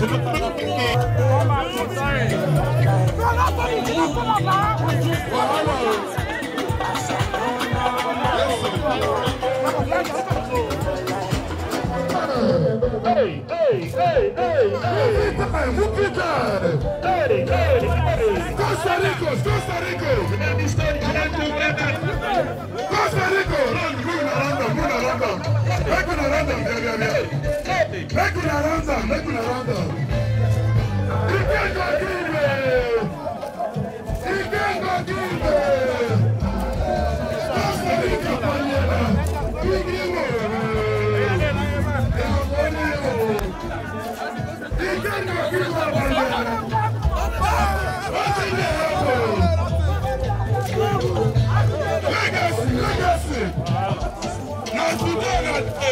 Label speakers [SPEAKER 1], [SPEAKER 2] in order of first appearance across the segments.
[SPEAKER 1] Thank you. Hey, hey, hey, Whoop it up. Hey, hey, hey. Costa Rica, Costa Rica. Costa Rica, run, run around run around them. Make one around them, yeah, yeah, yeah.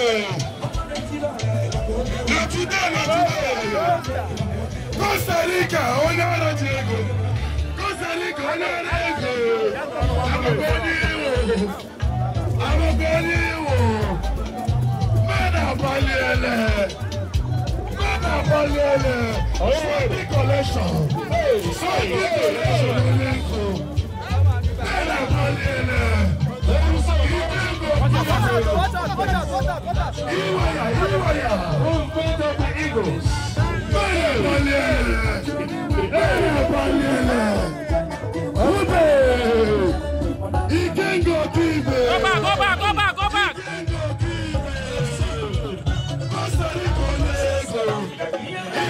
[SPEAKER 1] Lọtúndé lọtúndé. Costa Rica onye ọrụ ji Costa Rica onye ọrụ ego. Akwụkwọ onye iwu. Akwụkwọ onye iwu. Mmadụ agbaliele. Mmadụ agbaliele. Sọdị kọlekshọn. Sọdị kọlekshọn onye nkụ. Mmadụ agbaliele. Iwoya, Iwoya, on part of the Eagles. Bẹ́ẹ̀ balẹ̀, bẹ́ẹ̀ balẹ̀, ọbẹ̀, Ikengo Kibe. Go back, go back, go back, go back. Ikengo Kibe, Costa Rica, Lagos.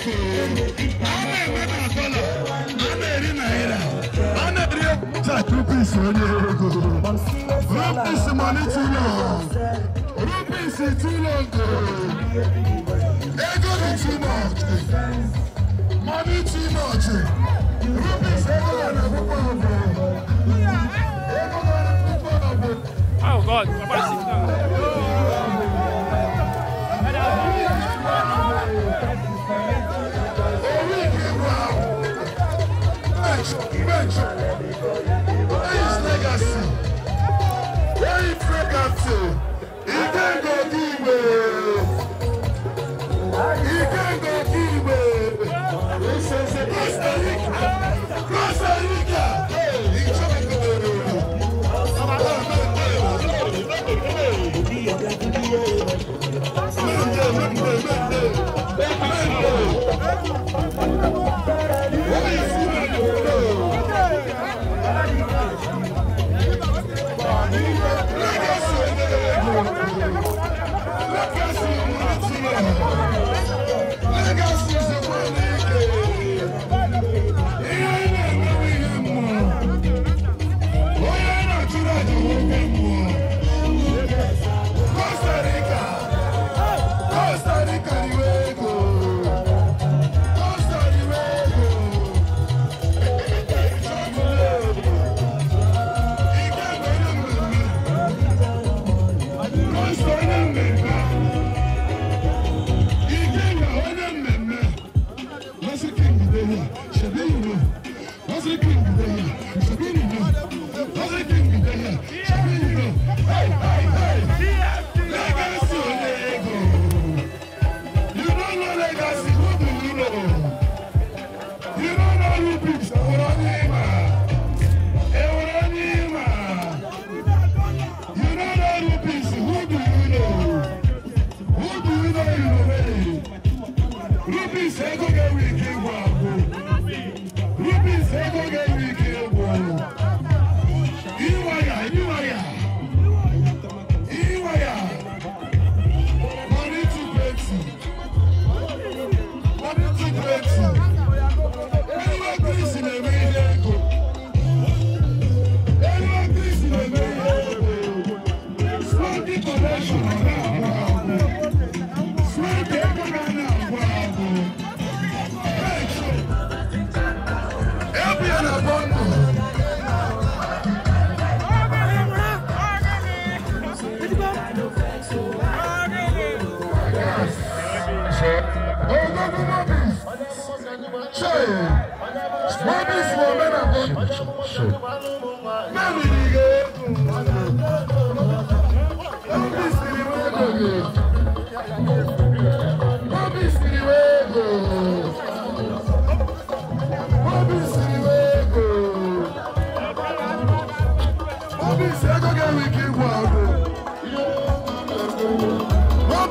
[SPEAKER 1] kwuru okwu a na-enwe na dọla a ego rupis too much mani too much rupis ego na akwụkwọ ọgwụ ego na akwụkwọ ọgwụ Oh God, I'm about to sit down. Bencho, legacy? legacy? He give He give This is Costa Rica. Costa Rica. Thank you.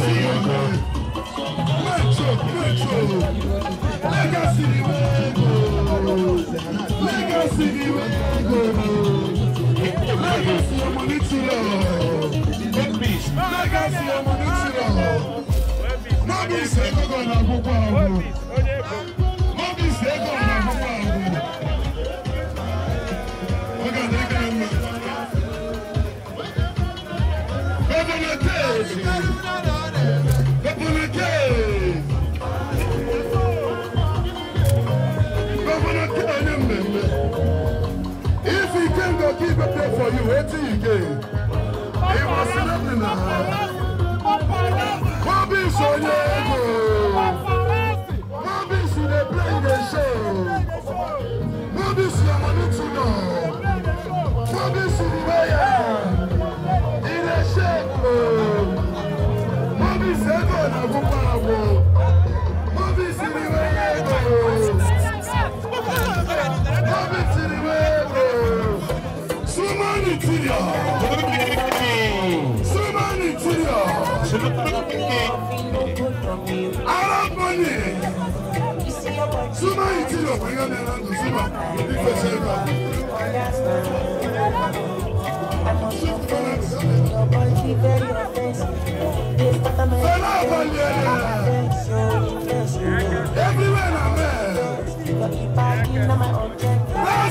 [SPEAKER 1] Legacy ọmọ ní tìrọ̀. Nọ́ọ̀bù ìṣẹ́gbọ́gọ́ ní agbógbó àwọn. etike ịmasịrị dị na ha obi sonye ego Semanitiya. I Arab money.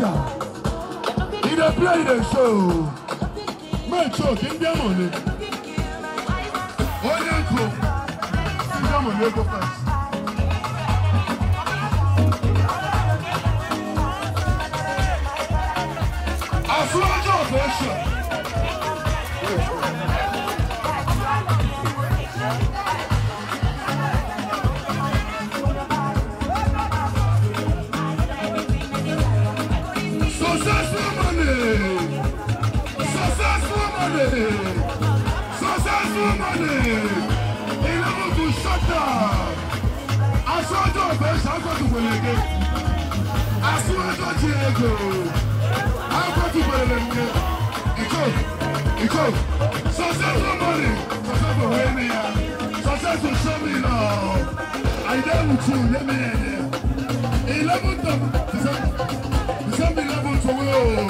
[SPEAKER 1] dancer. He done play, he dey show. Make sure kí n dé mọ̀lẹ́. Ó yẹ kó kí n dé mọ̀lẹ́ go first. Àsúwájú ọ̀fẹ́ ṣe. successful money, eleven to shut I I saw down. Aṣọ́jọ́ ọ̀fẹ́ ṣàkóso gbèlèké. Aṣíwájọ́ ti ego. Akóso gbèlèké. Ìkó Ìkó successful money, successful wey mi ya, successful show me now. I dare Àyídá ìwùtú yé mi yẹn. Eleven to December eleven to wey o.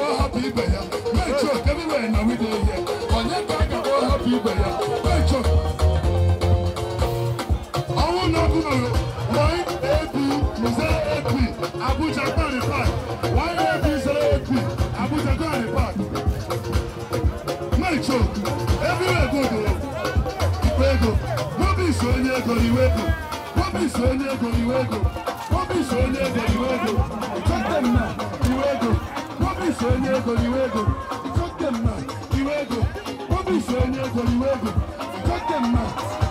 [SPEAKER 1] Abuja Quarry Park. Why eight zero eight three. Abuja Quarry Park. Make sure everywhere go go. Ikwego. be so near onye ego iwego. be so near onye ego iwego. be so near onye ego iwego. Chọte m na iwego. be so near onye ego iwego. Chọte m na iwego. be so onye ego iwego. Chọte them na.